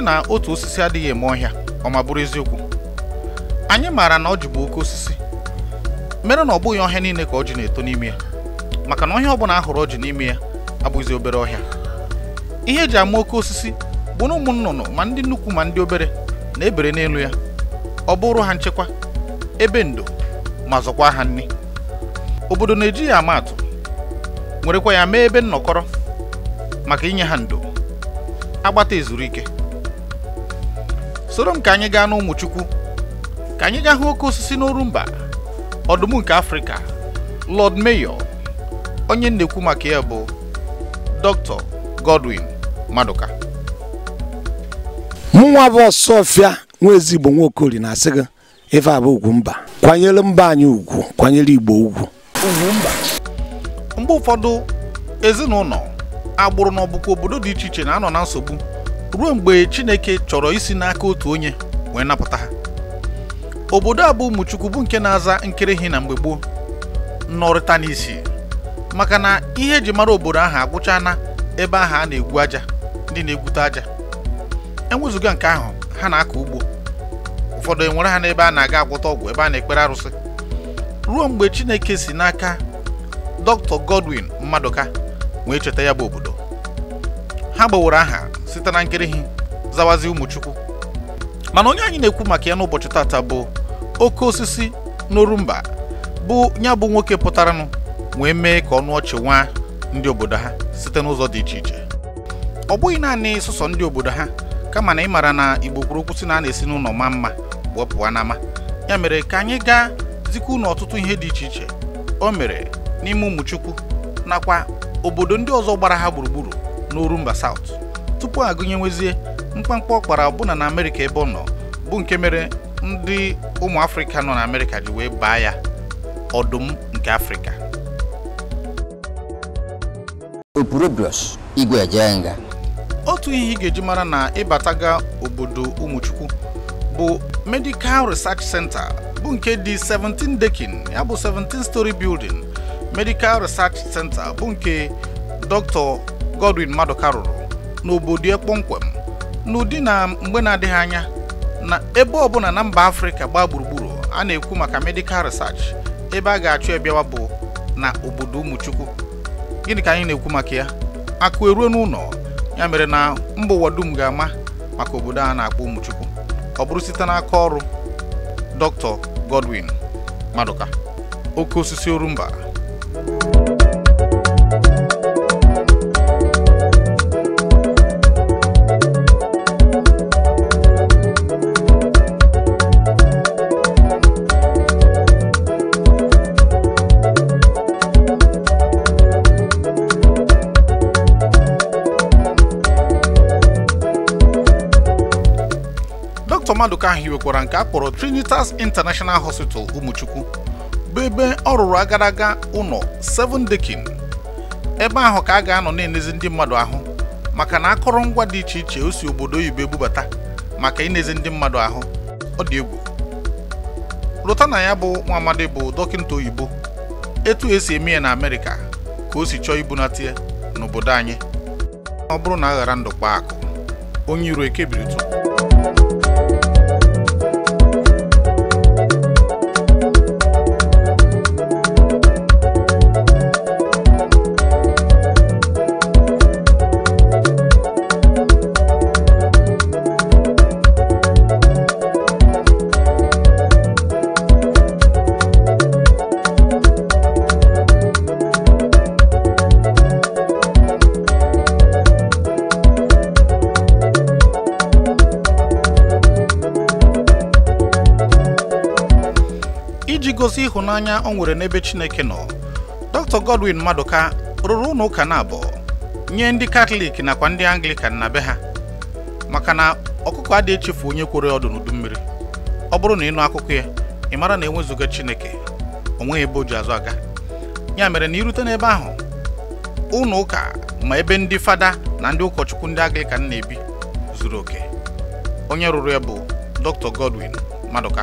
sị na otu osisi adịghị eme ọhịa ọ ma bụrụ eziokwu anyị maara na ọ bụ oke osisi mere na ọ bụghị ọhịa niile ka ọjị na-eto n'ime ya maka na ọhịa ọbụla ahụrụ ọjị n'ime ya abụghịzi obere ọhịa ihe eji ama oke osisi bụ na ụmụ nnụnụ ma ndị nnukwu ma ndị obere na-ebere n'elu ya ọ bụrụ ha nchekwa ebe ndo ma zọkwa ha nri obodo na-eji ya ama atụ werekwa ya mee ebe nnọkọrọ maka inye ha ndo agbata ezuru ike soro m anyị gaa n'ụmụ chukwu ka anyị gaa hụ oke osisi mba ọdụm nke afrịka lord mayor onye na maka ya bụ dr godwin maduka mụnwa bụ ọsọfịa nwa ezigbo nwaokori na-asị gị ife abụ ugwu mba kwanyere mba anyị ugwu kwanyere igbo ugwu mgbe ụfọdụ ezinụlọ agbụrụ na ọbụkwa obodo dị iche iche na-anọ na nsogbu ruo mgbe chineke chọrọ isi n'aka otu onye wee napụta ha obodo a bụ ụmụchukwu bụ nke na-aza nkịrịghị na mgbe gboo nnọrịta n'isi maka na ihe eji mara obodo ahụ agwụcha na ebe ahụ a na-egwu aja ndị na-egwute aja enwezụga nke ahụ ha na-akọ ugbo ụfọdụ enwere ha n'ebe a na-aga agwụta ọgwụ ebe a na-ekpere arụsị ruo mgbe chineke si n'aka dr godwin mmadụka wee cheta ya bụ obodo ha gbawara aha site na nkirighi zawazi ụmụchukwu mana onye anyị na-ekwu maka ya n'ụbọchị tata bụ oke osisi n'orumba bụ ya bụ nwoke pụtaranụ wee mee ka ọnụ ọchị nwa ndị obodo ha site n'ụzọ dị iche iche ọ bụghị naanị sụsọ ndị obodo ha kama na ịmara na igbo kwuru okwu na a na-esi n'ụlọ ma mma wee pụọ n'ama ya mere ka anyị gaa zikwa unu ọtụtụ ihe dị iche iche o mere n'ime ụmụchukwu nakwa obodo ndị ọzọ gbara ha gburugburu n'orumba South tupu gụnyewezie mkpamkpa ọ kpara ọbụna na amerịka ebe ọ nọ bụ nke mere ndị ụmụ afrịka nọ na amerịka ji wee baa ya ọdụm nke afrịka otu ihe ị ga-eji mara na ịbataga obodo ụmụchukwu bụ medical research center bụ nke dị 17 dekin ya bụ 17 story building medical research center bụ nke dr godwin maduka rụrụ n'obodo ya n'ụdị na mgbe na-adịghị anya na ebe ọbụla na mba afrịka gbaa gburugburu a na-ekwu maka medical research ebe a ga-achụ ebiawa bụ na obodo ụmụchukwu gịnị ka anyị na-ekwu maka ya akụ eruo n'ụlọ ya mere na mba ụwa dum ga-ama maka obodo a na-akpọ ụmụchukwu ọ bụrụ site n'aka ọrụ dr godwin madụka oke osisi orumba ahụ hiwekwara nke a kpọrọ Trinitas International Hospital ụmụchukwu bụ ebe ọ rụrụ agadaga ụlọ Seven Dekin ebe ahụ ka a ga-anọ na-enezi ndị mmadụ ahụ maka na akụrụngwa dị iche iche o si obodo oyibo ebubata maka inezi ndị mmadụ ahụ ọ dị egwu lụta na ya bụ nwa amadi bụ dọkịta oyibo etu esi eme ya na amerika ka o si chọọ ibunata ya n'obodo anyị ọ bụrụ na a ghara ndụ kpaa akụ onye iro biri tụ ịhụnanya o nwere n'ebe Chineke nọ Dr. Godwin Maduka rụrụ ụlọ ụka na abụọ nye ndị Katọlik nakwa ndị Anglikan na be ha maka na ọkụkọ adịghị echefu onye kwere ọdụ n'udu mmiri ọ bụrụ na ịnụ akụkọ ya ị mara na enwezụga Chineke onweghị nweghị ebe o azụ aga ya mere na irute n'ebe ahụ ụlọ ụka ma ebe ndị fada na ndị ụkọchukwu ndị Anglikan na-ebi zuru oke onye rụrụ ya bụ Dr. Godwin Maduka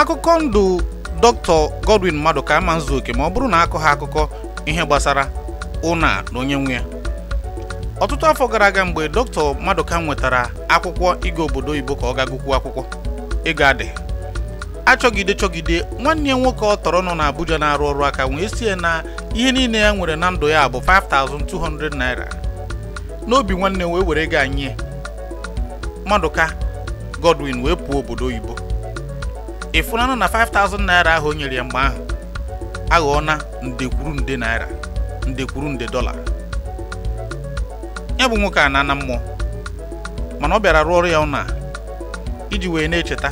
akụkọ ndụ dr godwin ka ama oke ma ọ bụrụ na akọ ha akụkọ ihe gbasara ụna na onye nwe ya ọtụtụ afọ gara aga mgbe dr maduka nwetara akwụkwọ ịga obodo oyibo ka ọ ga gụkwuo akwụkwọ ịga adị achọgide chọgide nwanne ya nwoke ọ tọrọ nọ n'abuja na-arụ ọrụ aka wee sie na ihe niile ya nwere na ndụ ya bụ 5200 naira n'obi nwanne wee were ga nye maduka godwin wee pụọ obodo oyibo ịfụlanụ na 5000 naira ahụ o nyere ya mgbe ahụ aghọọna kwuru nde naira ndekwuru nde dọla ya bụ nwoke a na-ana mmụọ mana ọ bịara rụọ ọrụ ya ụna iji wee na-echeta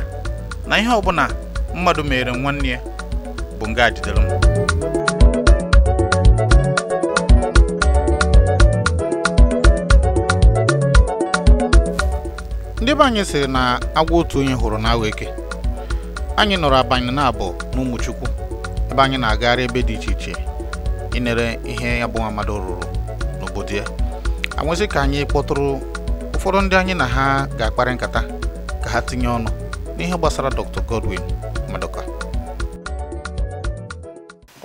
na ihe ọbụla mmadụ mere nwanne ya bụ nga jidere mma. ndị be anyị sịrị na agwa otu onye hụrụ na eke anyị nọrọ abanye na-abụ n'ụmụchukwu ebe anyị na-agagharị ebe dị iche iche inere ihe ya bụ rụrụ n'obodo ya anwezi ka anyị kpọtụrụ ụfọdụ ndị anyị na ha ga-akparị nkata ka ha tinye ọnụ n'ihe gbasara Dr. Godwin Maduka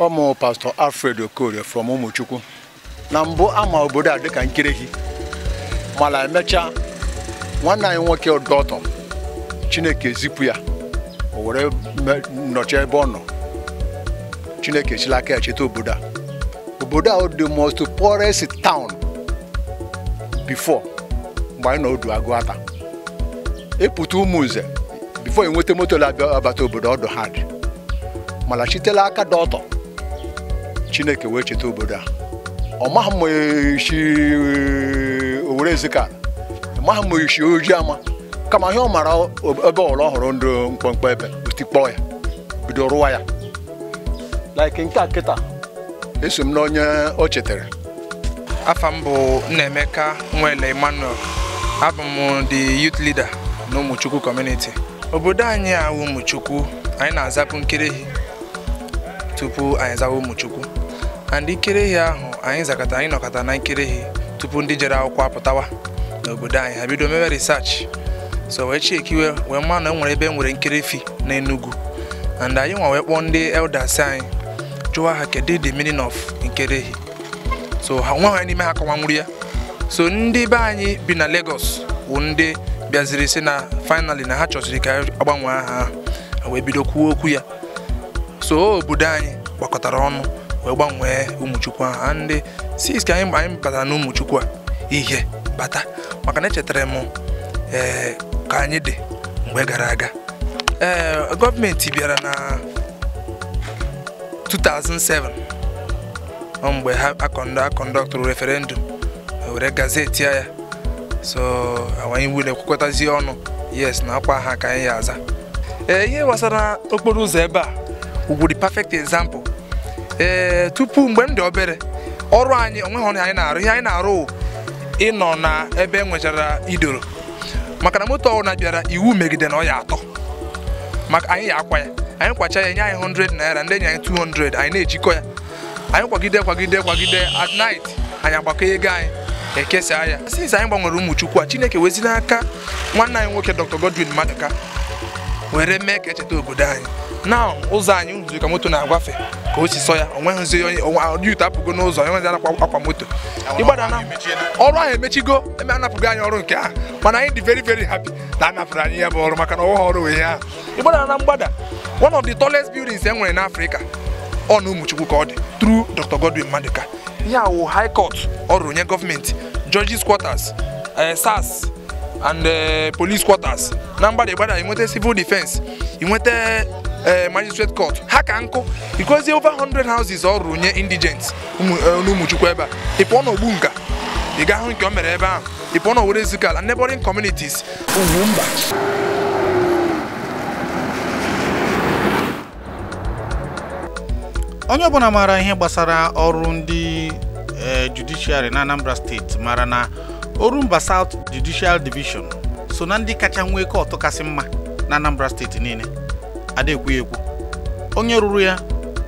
ọmụ pastọ Alfred Okorie from ụmụchukwu na mbụ ama obodo a dịka gị mana emechaa nwanne anyị nwoke ọdọtọ Chineke zipụ ya o were nọchie ebe ọ nọ chineke echila aka ya cheta obodo a obodo a dị most poorest town before mgbe anyị nọ odu agụ ata ịpụta ụmụ nze before enweta moto abata obodo ọdụ ha dị mana chitela aka dị ọtọ chineke wee cheta obodo a ọ maghị ma isi e, owere ọ maghị ma isi oji ama kama ihe ọ mara ebe ọrụ ọhụrụ ndụ mkpọmkpọ ebe butikpọọ ya bido rụwa ya like nke kịta eso m n'onye o chetara afa m bụ Nnaemeka Nwele Emmanuel abụ m the youth leader na Ụmụchukwu community obodo anyị a Ụmụchukwu anyị na-azapụ Nkerehi tupu anyị zawa Ụmụchukwu and Nkerehi ahụ anyị zakọta anyị nọkọta na Nkerehi tupu ndị jere akwụkwọ apụtawa n'obodo anyị ha bido mewe research so wee chekiwe wee ma na enwere ebe nwere nkiri fi na Enugu and anyị nwa wee kpọọ ndị elders anyị jụwa ha kedu the meaning of nkiri ehi so ha nwa ha n'ime ha kọwanwuru ya so ndị be anyị bi na Lagos bụ ndị bịaziri si na finally na ha chọsiri ka agbanwe ha wee bido kwuo okwu ya so obodo anyị gbakọtara ọnụ wee gbanwee ụmụchukwu ahụ ndị six ka anyị batara na ụmụchukwu a ihe bata maka na echetara m ee eh, ka anyị dị mgbe gara aga ee eh, gọọmenti bịara na 2007 mgbe ha akọndọ akọndọktụrụ referendum were gazeti ya so anyị wule kwekọtazie ọnụ yes na akwa ha ka anyị ya aza ee eh, ihe gbasara okporo ụzọ ebe a di perfect example ee eh, tupu mgbe m dị obere ọrụ anyị onweghị ọrụ anyị na-arụ ihe anyị na-arụ ịnọ na ebe enwechara idoro maka na moto ọbụla bịara iwu megide na ọ ya atọ maka anyị ya akwa ya anyị kwacha ya nye anyị 100 naira ndị anyị 200 anyị na-ejikọ ya anyị kwagide kwagide kwagide at night anyị agbakọ ego anyị ekesa ya since anyị gbanwere ụmụ chukwu a chineke wezi n'aka nwanne anyị nwoke dr godwin madụka were mee ka echeta obodo anyị na ụzọ anyị zuru ka moto na-agwafe ka o si sọ ya onweghịzi onye ọdịute apụgo n'ụzọ enweghịzi anakwa akwa moto ịgbada na ọrụ ahụ emechigo eme anapụgo anyị ọrụ nke ahụ mana anyị dị very veri hapi na anapụrụ anyị ya bụ ọrụ maka na ọwụghị ọrụ wee ya ịgbada na mgbada one of the tallest buildings e nwere n'Africa ọ na ụmụchukwu ka ọ dị through Dr. Godwin Maduka ihe awụ high court ọrụ nye gọọmenti judges quarters eh, sars and eh, police quarters na mgbada ịgbada inweta civil defense inweta Eh, magistrate court ha ka nkụ ikozie over 100 houses ọ rụrụ nye indigents eh, n'ụmụchukwu ebe a ị n'ogbu nka ị ga-ahụ nke o mere ebe ahụ ị pụọ n'owere zikala neighboring communities ugwu mba onye ọbụla maara ihe gbasara ọrụ ndị eh, judiciary na Anambra steeti mara na Orumba South Judicial Division so na ndị kacha nwee kọtụ kasị mma na Anambra steeti niile ada ekwu onye ruru ya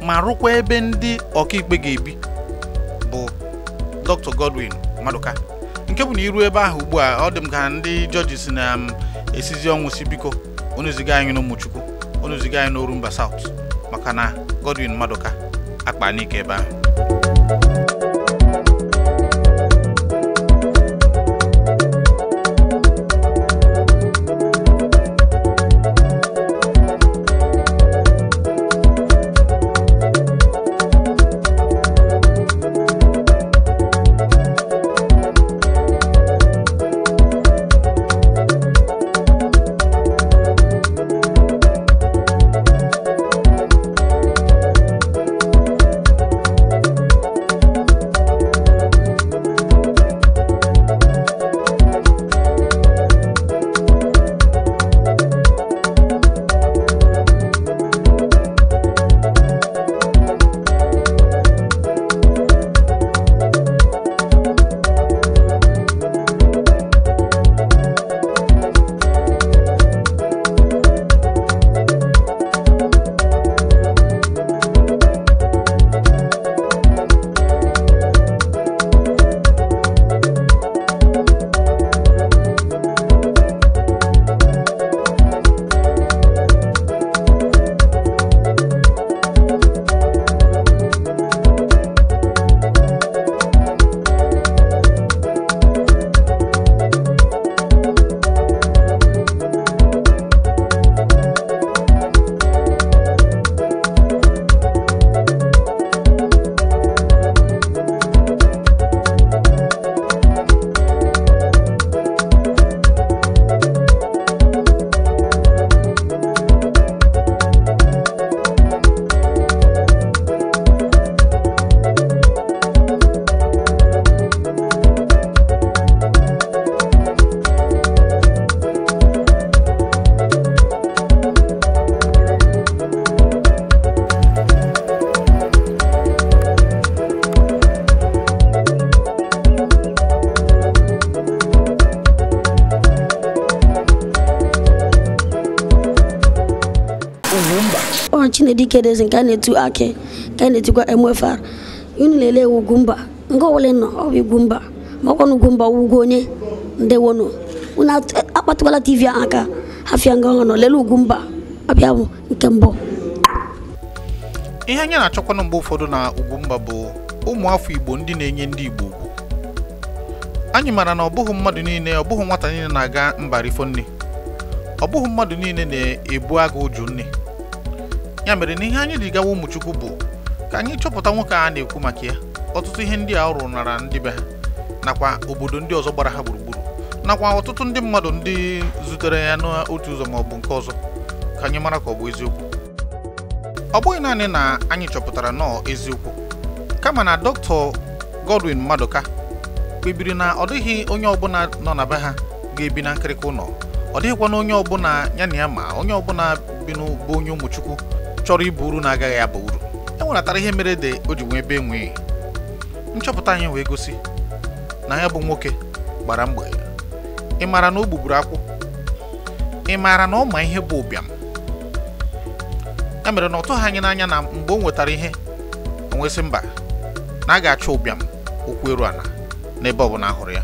ma rụkwa ebe ndị ọkaikpe ga-ebi bụ Dr. Godwin Maduka nke bụ na iru ebe ahụ ugbu a ọ dị m ka ndị jọjis na-esizi um, m ọnwụ si biko onyeziga anyị n'ụmụchukwu unu anyị n'Orumba saụt maka na Godwin madụka akpa n'ike ebe ahụ na-edi kedezi nke a na-etu akị nke a na-etikwa MFR unu na-ele ugwu mba nke ọbụla nọ ọ bụ igwu mba makwa na ugwu mba ugwu onye ndewonụ unu akpatụkwala tv ahụ aka hafịa nga ọhụrụ lele ugwu mba ọbịa bụ nke mbụ ihe anyị na-achọkwana mgbe ụfọdụ na Ugwumba bụ ụmụ afọ Igbo ndị na-enye ndị Igbo ugwu anyị mara na ọ bụghị mmadụ niile ọ bụghị nwata niile na-aga mba rifo nne ọ bụghị mmadụ niile na-ebu agụ ụjụ nne ya mere na ihe anyị ji gawa ụmụchukwu bụ ka anyị chọpụta nwoke a na-ekwu maka ya ọtụtụ ihe ndị a ọ rụnara ndị be ha nakwa obodo ndị ọzọ gbara ha gburugburu nakwa ọtụtụ ndị mmadụ ndị zutere ya n'otu ụzọ maọbụ nke ọzọ ka anyị mara ka ọ bụ eziokwu ọ bụghị naanị na anyị chọpụtara nọọ eziokwu kama na dọkịta Godwin ka kpebiri na ọ dịghị onye ọbụla nọ na be ha ga-ebi na nkịrịka ụlọ ọ dịghịkwa na onye ọbụla ya na ya ma onye ọbụla bi n'ụbụ onye ụmụchukwu chọrọ ịbụ uru na-agaghị abụ uru e nweratara ihe mere ede o ji nwee ebe enweghị nchọpụta anyị wee gosi na ya bụ nwoke gbara mgbe ị maara na o gbugburu akwụ ị maara na ọ ma ihe bụ ụbịam e mere na ọ tụghị anyị n'anya na mgbe o nwetara ihe onwesị mba na a ga-achọ ụbịam okwu eru ala n'ebe ọ bụla ahụrụ ya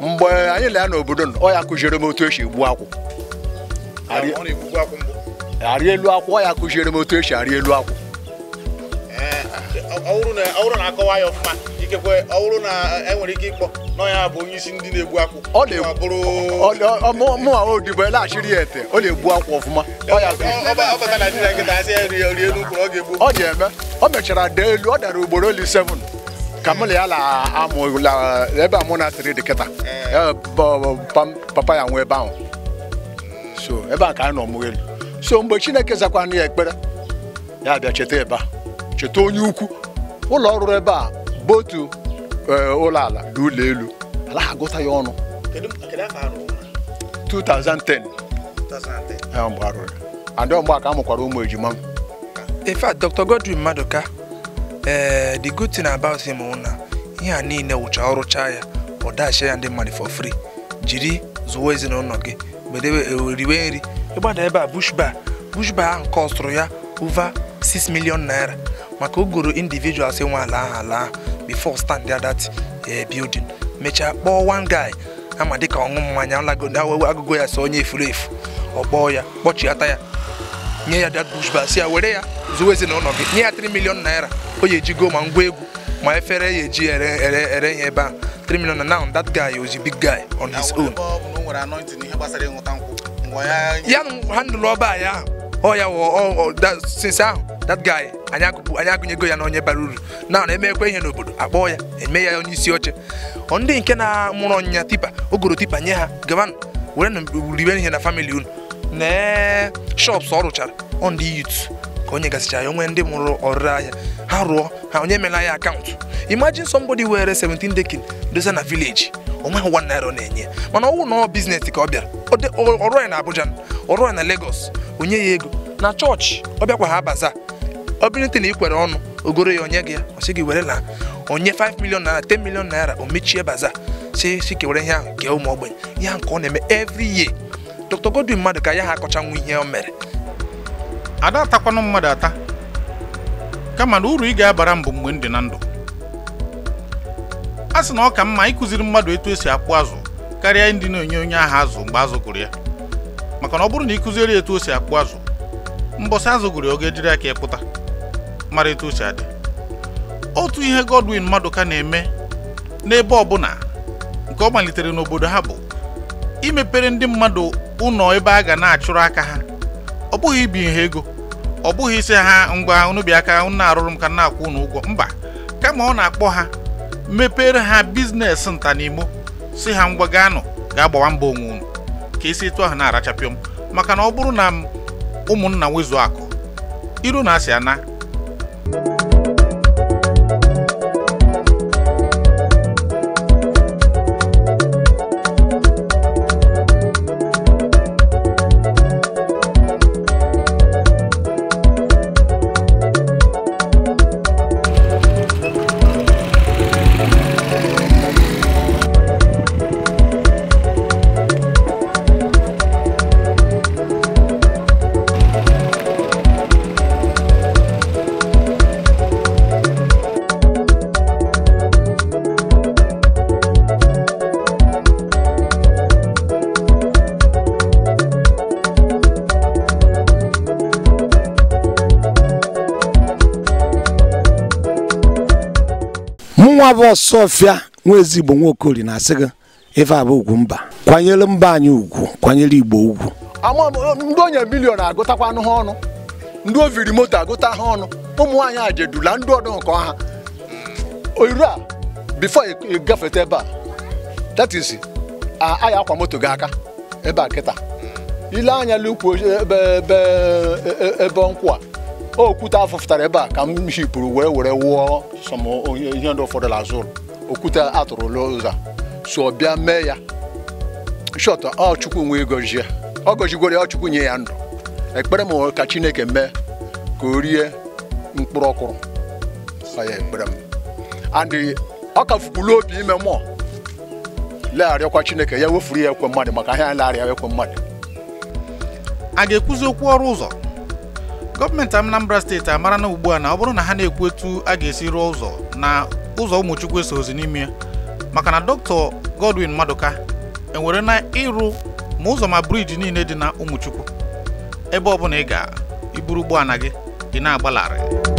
mgbe anyị laa n'obodo ọ ya kụziere m otu esi gbuo akwụ arị elu akwụ ya kụziere m otu esi arị elu akwụ mụnwa odibo laghachiri ya ete ọ na-egbu akwụ ọfụma ọ ga-eme o mechara daa elu ọ dara ugboro oli 7 ka mụ na ya na ebe a mụ na-asịrị dị kịta eh. Eh, papa ya nwee ebe ahụ so ebe a ka anyị nọ mụọ elu so mgbe chineke zakwana ya ekpere ya bịa cheta ebe a cheta onye ukwu ụlọ ọrụ ebe a bụ otu eh, ụlọ ala na ụlọ elu ala gụta agụta ya ọnụ 2010 mgbe arụrụ ya ndị amụkwara ụmụ ejima m in fact Dr. Godwin Maduka eh, the good thing about him na ihe a niile wụcha ọrụcha ya ọ dachie ya ndị mmadụ for free jiri zụwa ezinụlọ gị Eh, riwe nri ịgbada ebe a bush bar bush ahụ kọstụrụ ya over 6 million naira maka ogoro individuals nwe ala ahụ ala ahụ before stand there that eh, building mechaa kpọọ one guy ama dịka ọṅụ mmanya agụgụ ya so onye efuru efu ọ kpọọ ya kpọchiata ya nye ya that bush si ya were ya zuwe ezinụlọ gị nye ya 3 million naira o ya ejigo ma ngwa egwu ma efere ya ji ere ere ere ya ebe a 3 e, e, e, million na now that guy was a big guy on his own ya handụlụ ọba ya ọ oh, ya oh, oh, since ahụ that guy anyị agụnyego ya na onye bara uru na na emekwa ihe n'obodo akpọọ ya eme ya onye isi oche ndị nke na-amụrụ ọnyịnya tipa ogoro tipa nye ha gawanụ were ribe ihe na famili unu na shops ọ rụchara on the youth ka onye gasịchara ya onwe ndị mụrụ ọrụ ahịa ha rụọ ha onye emela ya akaụntụ imagine somebody were 17 dekin dosa na vileji onweghị one naira ọ na-enye mana ọwụ na ọ biznes ka ọ bịara ọrụ ya na Abuja ọrụ ya na Lagos onye ya ego na chọọchị ọ bịakwa ha baza ọ bụrụte na ikwere kwere ọnụ ogoro ya onye gị ya ọ sị gị were na onye 5 million naira 10 million naira o mechie baza si si kewere ihe ahụ nke ụmụ ogbenye ihe nke ọ na-eme every ye Dr. Godwin mmadụ ka ya ha akọchanwu ihe o mere ada atakwanụ mmadụ ata kama na uru ị ga-abara m bụ mgbe m dị na ndụ a sị na ọ ka mma ịkụziri mmadụ etu esi akpụ azụ karịa ndị na-enye onye ahụ azụ mgbe azụ gụrụ ya maka na ọ bụrụ na ịkụziri etu o si akpụ azụ mbọsị azụ gụrụ ya ọ ga-ejiri aka ịpụta mara etu o si adị otu ihe Godwin ka na-eme n'ebe bụla nke ọ malitere n'obodo ha bụ imepere ndị mmadụ ụlọ ebe a ga na-achụrụ aka ha ọ bụghị ibi nha ego ọ bụghị isi ha ngwa unu aka unu na-arụrụ m ka na-akwụ unu ụgwọ mba kama ọ na-akpọ ha mepere ha biznes nta n'imo si ha ngwa gaa nụ ga-agbawa mba onwe unu ka isi etu ahụ na-arachapịọ m maka na ọ bụrụ na m ụmụnna nwezuo akụ iru na asị ana abụ sofia nwa ezigbo nwaokori na-asị gị ife abụ ugwu mba kwanyere mba anyị ugwu kwanyere igbo ugwu ndị onye bilion agụtakwanụ ha ọnụ ndị oviri moto agụta ha ọnụ ụmụ nwanyị ajedula ndị ọdụ nke ọha oyiru a bifo gafeta ebe a that is aya akwa moto gị aka ebe a kịta ile anya n'ukwu ebe e, e, nkwụ a okwute afụfụtara ebe a ka m hipụrụ were were wụọ sọm ihe ndị ụfọdụ azụrụ okwute atụrụ loza so bịa mee ya shọt ọ chukwu nwe gọzie ọ gọzigoro ya chukwu nye ya ndụ ekpere m ka chineke mee ka o rie mkpụrụ ọkụrụ ekpere m andị ọ ka fukwuru obi ime mmụọ legharịakwa chineke ya wefuru ya ekwe mmadụ maka ihe ya legharịa ekwe mmadụ a ga-ekwuzi okwu ọrụ ụzọ gọọmenti Anambra steeti amara na ugbu a na ọ bụrụ na ha na-ekwu etu a ga-esi rụọ ụzọ na ụzọ ụmụchukwu eso ozi n'ime maka na dọkịta Godwin Maduka enwere na ịrụ ma ụzọ ma briji niile dị na ụmụchukwu ebe ọ bụla ị ga iburu ụgbọala gị ị na-agbalarị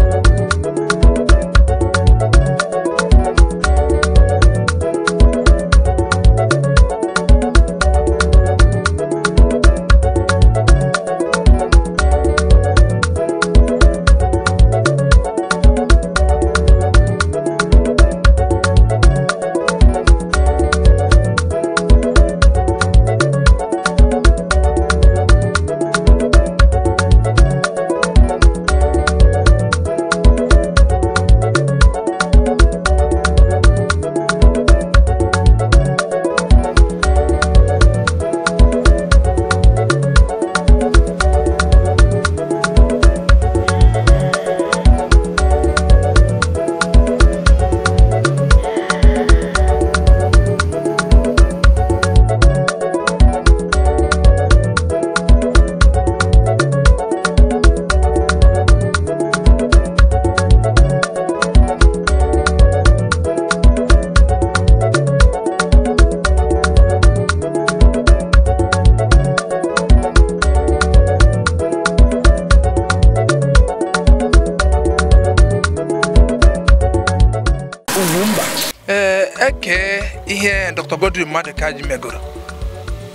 mba ee eh, eke ihe Dr. Godwin Madụkaji megoro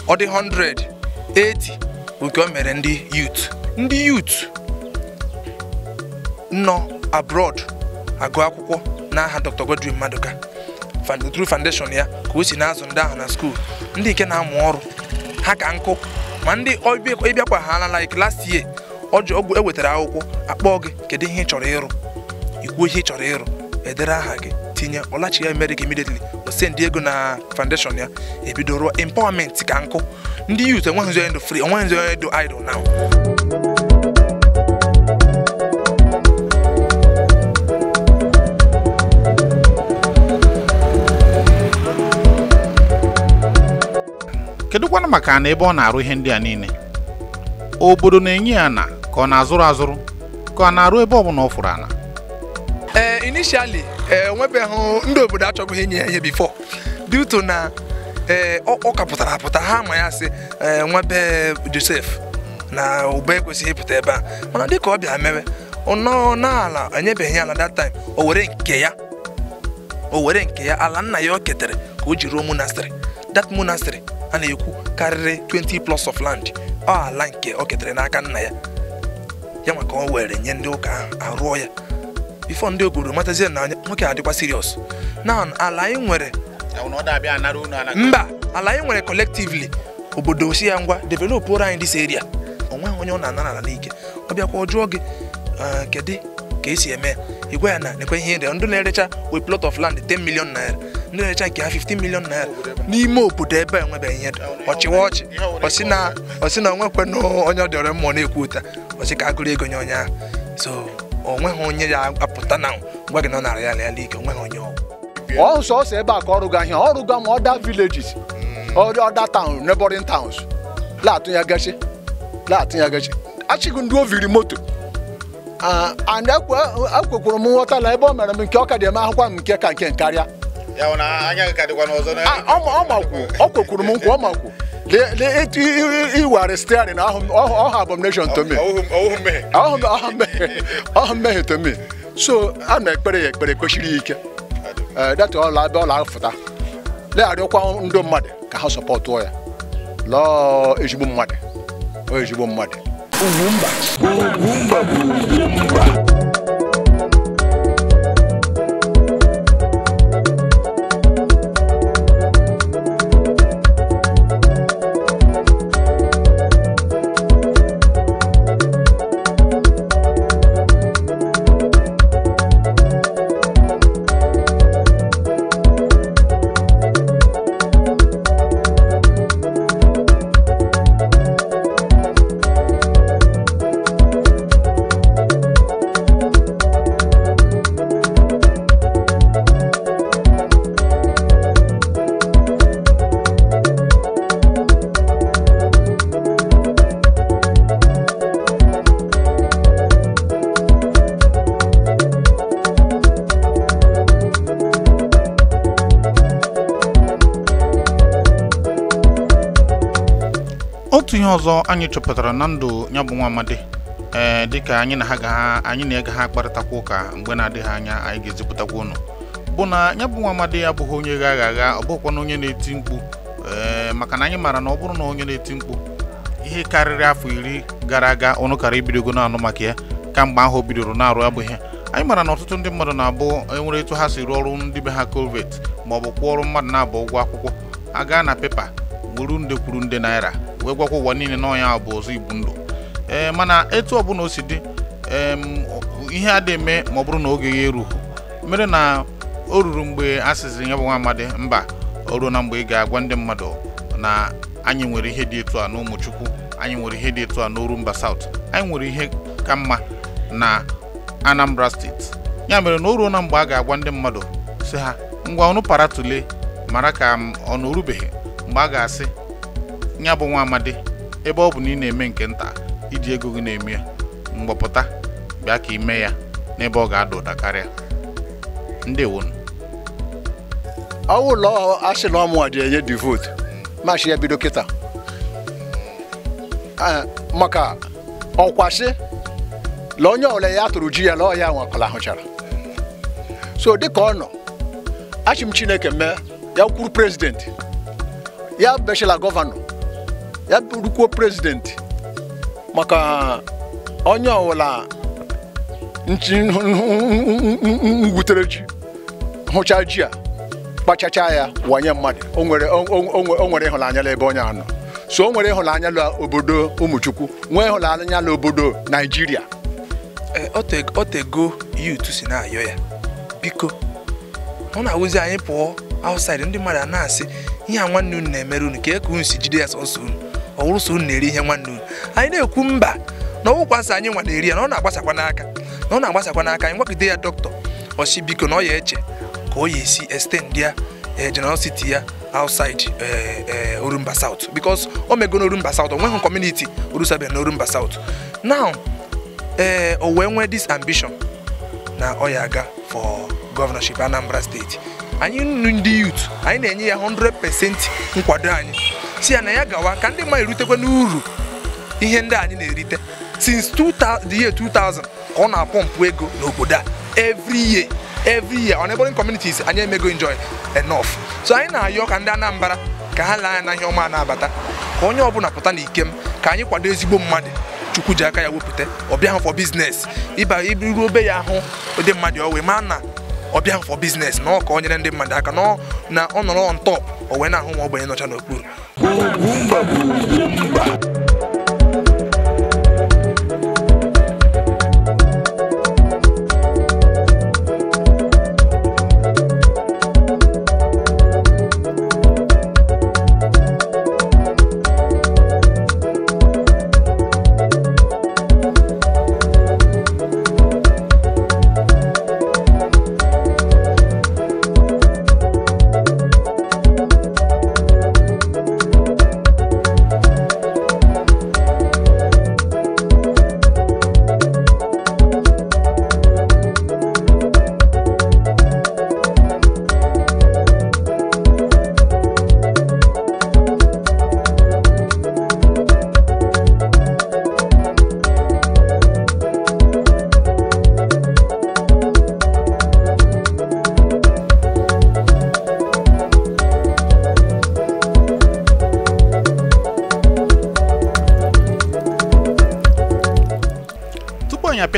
ọ dị 180 nke o mere ndị youth ndị youth nọ abroad agụ akwụkwọ n'aha Dr. Godwin Madụka through foundation ya ka o si na-azụ ndị ahụ na skuul ndị nke na-amụ ọrụ ha ka nkụ ma ndị ịbịakwa ha ala like last year ọgwụ ewetara akwụkwọ akpọọ gị kedu ihe ị chọrọ ịrụ ikwuo ihe ị chọrọ ịrụ edere aha gị tinye ọlachi ya emerịka immediately o send ego na foundation ya ebido ruo empowerment ka nkụ ndị youth enweghị nzọ edo free enweghị nzọ edo idol now kedụkwanụ maka na ebe ọ na-arụ ihe ndị a niile obodo na-enye ya na ka ọ na-azụrụ azụrụ ka ọ na-arụ ebe ọ bụla ọ fụrụ ala? ee eh, initially enwebeghị eh, ndị obodo achọghị inye ya ihe bifo due na ee eh, ọ kapụtara apụta ha ma ya sị eh, nwebe Josef na ube ekwesịghị ịpụta ebe a mana dịka ọ bịa mewe nọọ n'ala enyebeghị ala that time o were nke ya o were nke ya ala nna ya o ketere ka o ji ruo monastery that monastery a na-ekwu karịrị 20 plus of land ọ ala nke o ketere n'aka nna ya ya maka o were nye ndị ụka ahụ arụọ ya bifo ndị obodo matazie na anya nwoke adịkwa serious na ala anyị nwere mba ala anyị nwere collectively obodo osi ya ngwa develop ụra anyị dis area onwe onye ọ na-anara ala n'ike ọ bịakwa ọ jụọ gị eh, kedu ka esi eme igwe ya na nekwe ihe ere ndị na-erecha we plot of land 10 million naira ndị na-erecha nke ha 15 million naira n'ime obodo ebe enwebeghị ihe ọchịwa ọchị ọsị na onwekwe na onye ọ dịọrọ mmụọ na-ekwu ụta ọsị ka agụrụ ego nye onye ahụ so onweghị onye ya apụta na ngwa gị nọ na Royal Air League onweghị onye ọ sọsọ ebe a ka ọrụ gị ahịa ọrụ gwa ma hmm. ọda villages ọda taụn taụns ya gachi. towns ya gachi. achịghị ndị oviri moto and ekwekwuru e m nghọtala ebe ọ mere m nke ọ ka dị eme ahụkwa m nke ka nke karịa ọ makwuo ọ kwekwuru m nkwa ọ makwuo iware steering ọha abomination to me ọha mmehie to me so a na ekpere ya ekpere kwesịrị ike data ọla abịa ọla afụta legharịkwa ndị mmadụ ka ha sọpọtụọ ya lọọ ezigbo mmadụ ezigbo mmadụ Ugwumba Ugwumba Ugwumba anyị chọpụtara na ndụ ya bụ nwa amadi ee eh, dịka anyị na ha ga anyị na ega ha kparịtakwa ụka mgbe na-adịghị anya anyị ga-ezipụtakwa ụnụ bụ na ya bụ nwa amadi abụghị onye ga agha agha ọ bụkwa na onye na-eti mkpu eh, maka na anyị maara na ọ bụrụ na onye na-eti mkpu ihe karịrị afọ iri gara aga ọnụ kara ibidogo na-anụ maka ya kamgbe ahụ bidoro na-arụ ya bụ ihe anyị maara na ọtụtụ ndị mmadụ na-abụ enwere etu ha si rụọ ọrụ ndị be ha kovet ma ọ bụ kwụọ ọrụ mmadụ na-abụ ụgwọ akwụkwọ aga na pepa gburu nde kwuru nde naira wee gwakwa ụwa niile n'ọnya bụ ọzọ igbu ndụ ee eh, mana etu ọbụla o si dị ihe a dị eme ma ọ bụrụ na oge ya erughị mere na o ruru mgbe a sịziri ya bụ nwa amadi mba o ruo na mgbe ị ga-agwa ndị mmadụ na anyị nwere ihe dị etu a n'ụmụchukwu anyị nwere ihe dị etu a mba saut anyị nwere ihe ka mma na Anambra steeti ya mere na o ruo na mgbe a ga-agwa ndị mmadụ si ha ngwa ọnụ para tule mara ka ọ na orubeghị mgbe a ga-asị ya bụ nwa amadi ebe ọ bụ na ị na-eme nke nta iji ego gị na-eme ya mgbapụta bịa ka ime ya n'ebe ọ ga-ada ụda karịa ndị ọwụ ụlọ asị na ọmụ dị enye dị votu ya bido kịta maka ọkwasị la onye ọbụla ya tụrụ ji ya la ọya nwakọla ahụchara so dịka ọ nọ achị m chineke mee ya kwuru prezidenti ya bechila gọvanọ ya bụrụkwuo prezidenti maka onye ọwụla ngwutere ji hụcha ji a kpachacha ya wanye mmadụ o nwere ịhụnanya n'ebe onye anọ so o nwere ịhụnanya la obodo ụmụchukwu nwee ịhụnanya la obodo naijiria e, otego yut si na-ayọ ya biko ọ na-awụzi anyị pụọ outside ndị mmadụ a na-asị ihe a nwanne unu na-emere unu ka e ka unu si jide ya sọsọ unu ọwụrụsọ unu na-eri ihe nwanne unu anyị na-ekwu mba na ọwụkwa anyị nwa na-eri ya na ọ na-agbasakwa n'aka na ọ na-agbasakwa n'aka anyị gwakide ya dọkịta ọsị biko na ọ ya eche ka ọ ya esi extend ya eh, generosity ya outside eh, eh, Orumba South because o mego n'Orumba South o nweghị community orusabe na Orumba South now ee o wee nwee dis ambition na ọ ya aga for governorship Anambra steeti anyị ndị youth anyị na-enye ya 100% nkwado anyị si ya na ya gawa ka ndị mmadụ erutekwa n'uru ihe ndị anyị na-erite since the year 2000 ka ọ na-apọmpụ ego n'obodo a every year every year on neighboring communities anyị emego enjoy enough so anyị na-ayọ ka ndị Anambra ka ha lee anya na ihe ọma na-abata ka onye ọbụla pụta na ikem ka anyị kwado ezigbo mmadụ chukwu ji aka ya wepụta ọbịa ha for biznes ịba iruo obe ya ahụ ụdị mmadụ ọ wee ma na ọ bịa for business na ọ ka ọnyere ndị mmadụ aka na ọ nọrọ on o wee na-ahụ ma ogbenye nọcha n'okpuru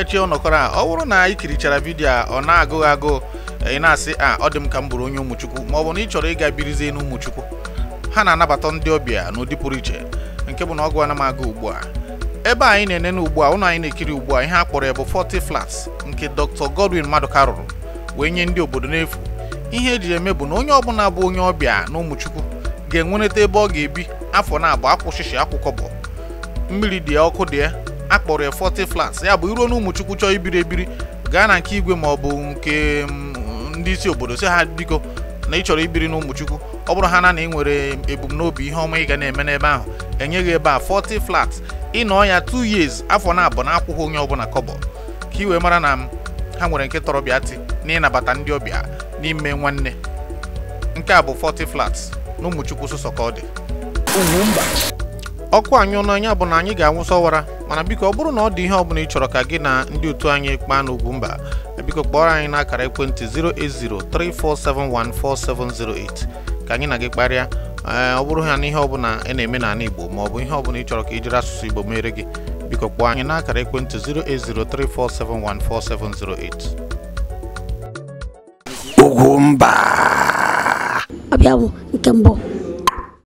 mechie ọnọkọrọ a ọ bụrụ na ị kirichara vidio a ọ na-agụghị agụụ ị na-asị a ah, ọ dị m ka m bụrụ onye ụmụchukwu ma ọ bụ na ị chọrọ ịga birizie n'ụmụchukwu ha na-anabata ndị ọbịa n'ụdị pụrụ iche nke bụ na ọgụ ana m ugbu a ebe anyị na ene ugbu a ụlọ anyị na-ekiri ugbu a ihe a kpọrọ ya bụ 40 flats nke Dr. Godwin Maduka rụrụ wee nye ndị obodo n'efu ihe eji eme bụ na onye ọbụla bụ onye ọbịa na ụmụchukwu ga-enwerịta ebe ọ ga-ebi afọ na-abụ akwụshishi akwụkọ bụ mmiri dị ọkụ dị ya akpọrọ ya forty flats ya bụ iruo na ụmụchukwu chọọ ibiri ebiri gaa na nke igwe ma ọ bụ nke mm, ndị isi obodo si ha biko na ị chọrọ ibiri na ụmụchukwu ọ bụrụ ha na na ịnwere nwere ebumnobi ihe ọma ị ga na-eme n'ebe ahụ enyeghị ebe a forty flats ịnọ ya 2 years afọ na abụọ na akwụghị onye ọbụla kọbọ ka iwe mara na mm, ha nwere nke tọrọbịa tị na ịnabata ndị ọbịa n'ime nwanne nke a bụ forty flats n'ụmụchukwu ụmụchukwu sụsọ ka ọ dị ọkụ anyị n'anya bụ na anyị ga-anwụsọ mana biko ọ bụrụ na ọ dị ihe ọbụla ị chọrọ ka gị na ndị otu anyị kpaa n'Ugwumba biko kpọrọ anyị n'akara ekwentị 08034714708 ka anyị na gị kparịa ọ bụrụ ha na ihe ọbụla ị na-eme n'ala Igbo ma ọ bụ ihe ọbụla ị chọrọ ka ị jiri asụsụ Igbo mere gị biko kpọọ anyị n'akara ekwentị 08034714708 mba. ọbịa bụ nke mbụ